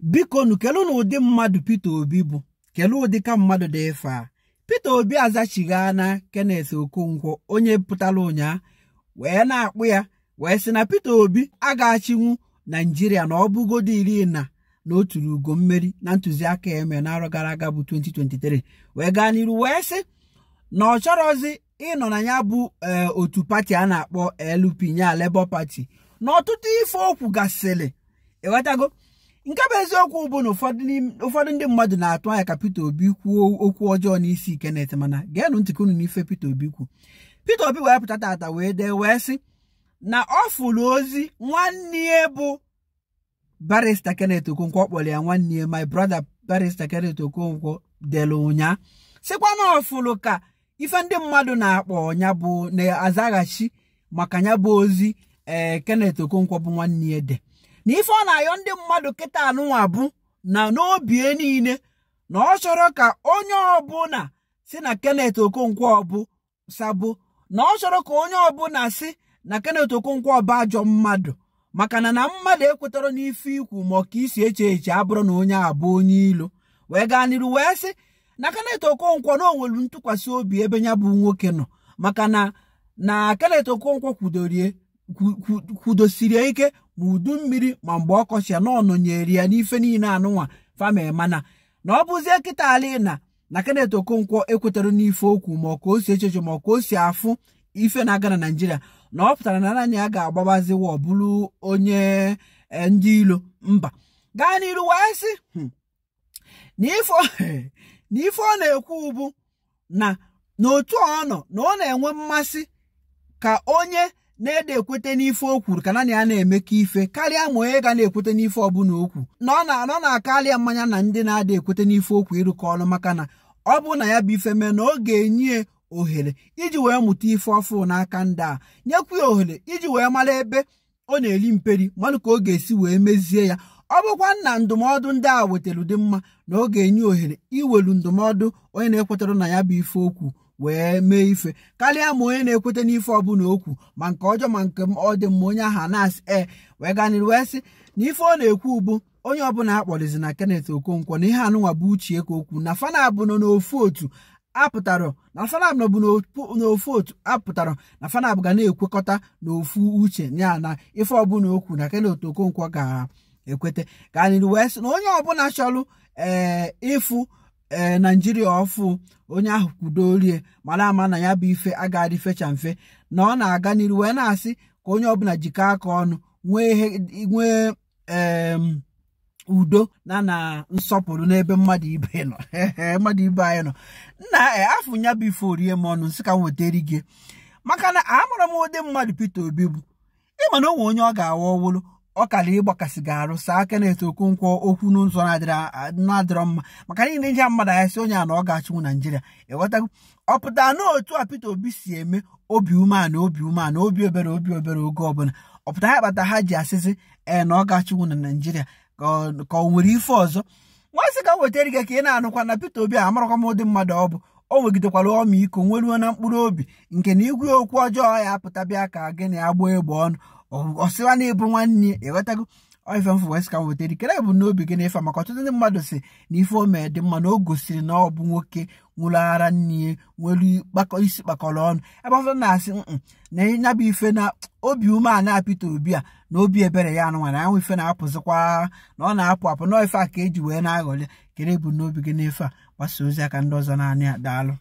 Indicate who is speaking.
Speaker 1: biko nu na ụdị mmadụ Peter Obi bụ kelee ụdị ka mmadụ dị ife a Peter Obi azachigha na Kenneth Okonkwo onye pụtara ụnyaa wee na-akpụ ya wee sị na Peter Obi agachinwu Naijiria na ọ bụgodo iri na na ugo mmeri na ntụziaka eme n'arọgara gara aga bụ 2023 wee gaa n'iru wee sị na ọ chọrọzi ịnọ na ya bụ eh, otu pati a na-akpọ LP nya Labour Party na ọtụtụ ife okwu gasịrị ewetago nke bụ eziokwu bụ na ụfọdụ ndị mmadụ na-atụ anya ka Peter Obi kwuo okwu ọjọọ n'isi kenet mana geenụ ntịkọ unu n'ife Peter Obi kwu Peter Obi wee pụta tata wee dee wee sị na ọ fụrụ ozi nwanne ya bụ barista Kenneth Okonkwo ọ kpọrọ ya nwanne ya my brother barista Kenneth Okonkwo dere ụnya sịkwa na ọ fụrụ ka ife ndị mmadụ na-akpọ ya bụ na-azaghachi maka ya bụ ozi ee eh, Kenneth Okonkwo bụ nwanne ya de na ife ọ na-ayọ ndị mmadụ kịta anụnwa bụ na n'obie niile na ọ chọrọ ka onye ọbụla si na kenet Okonkwo ọbụ sabụ na ọ chọrọ ka onye ọbụla si na kenet Okonkwo ọbụ ajọ mmadụ maka na mmadụ ekwetara n'ife ikwu ma ka isi eche eche abụrụ na onye abụ onye ilo wee gaa n'iru wee sị na kenet Okonkwo na onwelu ntụkwasị obi ebe ya bụ nwoke nọ maka na na Kenneth Okonkwo kwudorie kwudosirie ike ma udu mmiri ma mgbe ọkọchị ya na ọnọnyere ya n'ife niile anụnwa mana na ọ bụzie kịta ala na na Kenneth Okonkwo ekwetara n'ife okwu ma ka o si echeche ma ka o si afụ ife na-aga na Naịjirịa na ọ pụtara na naanị ya ga-agbabazi ọbụrụ bụrụ onye e, ndị ilo mba gaa n'iru wee sị hmm, na ọ na-ekwu bụ na n'otu ọ nọ na ọ na-enwe mmasị ka onye na-ede ekwete n'ife o kwuru ka na ya na eme ka ife karịa ma onye ga na-ekwete n'ife ọbụla okwu na ọ na-anọ na-akarịa mmanya na ndị na-ada ekwete n'ife okwu ịrụkọ ọnụ maka na ọ bụ na ya bụ ife mee na ọ ga-enye ohere iji wee mụta ife ọfụ n'aka ndị a nyekwu ya ohere iji wee mara ebe ọ na-eri mperi mmanụ ka ọ ga-esi wee mezie ya ọ bụkwa na ndụmọdụ ndị a wetara ụdị mma na ọ ga-enye ohere iwelu ndụmọdụ onye na-ekwetara na ya bụ ife okwu wee mee ife karịa ma onye na-ekweta n'ife ọbụla okwu ma nke ọjọọ ma nke ọ dị mma onye ahụ nas e eh, ee wee ganịrị wee sị na ife ọ na-ekwu ụbụ onye ọbụla akpọrịzi na Kenneth Okonkwo na ihe anụnwa bụ uchie ka okwu na fanabụ nọ n'ofu otu apụtara na fanab nọbụ n'ofu otu apụtara na fanab ga na-ekwekọta n'ofu uche ya na ife ọbụla okwu na Kenneth Okonkwo ga-ekweta ka anyị wee sị na onye ọbụla chọrọ ee eh, ịfụ ee naijiria ọfụ onye ahụ kwudo orie mara ama na ya bụ ife agaghị fecha mfe na ọ na-aga n'iru wee na-asị ka onye ọbụla jikọ aka ọnụ nwee udo na na nsọpụrụ n'ebe mmadụ ibe nọ mmadụ ibe anyị nọ nna e, afọ ya bụ ife orie m ọnụ nsị ka m wetara gị maka na amara m ụdị mmadụ Peter Obi bụ ịma na o onye ọ ga-awa ọwụlụ ọ kara ịgbakasị gị arụ saa aka na-eto okonkwo okwu n'ụzọ na-adịrọ mma maka niile ndị mmadụ anya onye a na ọ ga-achịnwu naijiria ịghọtago ọ pụtara na otu a Peter Obi si eme obi umeala obi umeala obi obere obi obere oge ọbụla ọ pụtara ya kpata ha ji asịsị ee na ọ ga-achịnwu na naijiria ka ọ nwere ife ọzọ nwansị ka wetara gị ka ị na-anụkwa na pete Obi a amarakwa m ụdị mmadụ ọ bụ o nwegidekwara ọmaiko nweruo na mkpụrụ obi nke na igwe okwu ọjọọ ya apụta bịa ka gị na ya gbaa egbe ọnụ ọsịwa na-ebu nwanne ya ịghọtago ife mfụ wes ka m wetara ikele bụ n'obi gị na-efe maka ọtụtụ ndị mmadụ si na ife omee dị mma na o gosiri na ọ bụ nwoke nwụrụ ara nne nwere isi kpakọrọ ọnụ ebe ọfọ na-asị na ya bụ ife na obi ume a na-apịta obi a na obi ebere ya anụ nwere anwụ ife na-apụzikwa na ọ na-apụ apụ na ife a ka eji wee na-aghọli kere bụ n'obi gị na-efe a gbasa ozi aka ndị ọzọ naanị a daalụ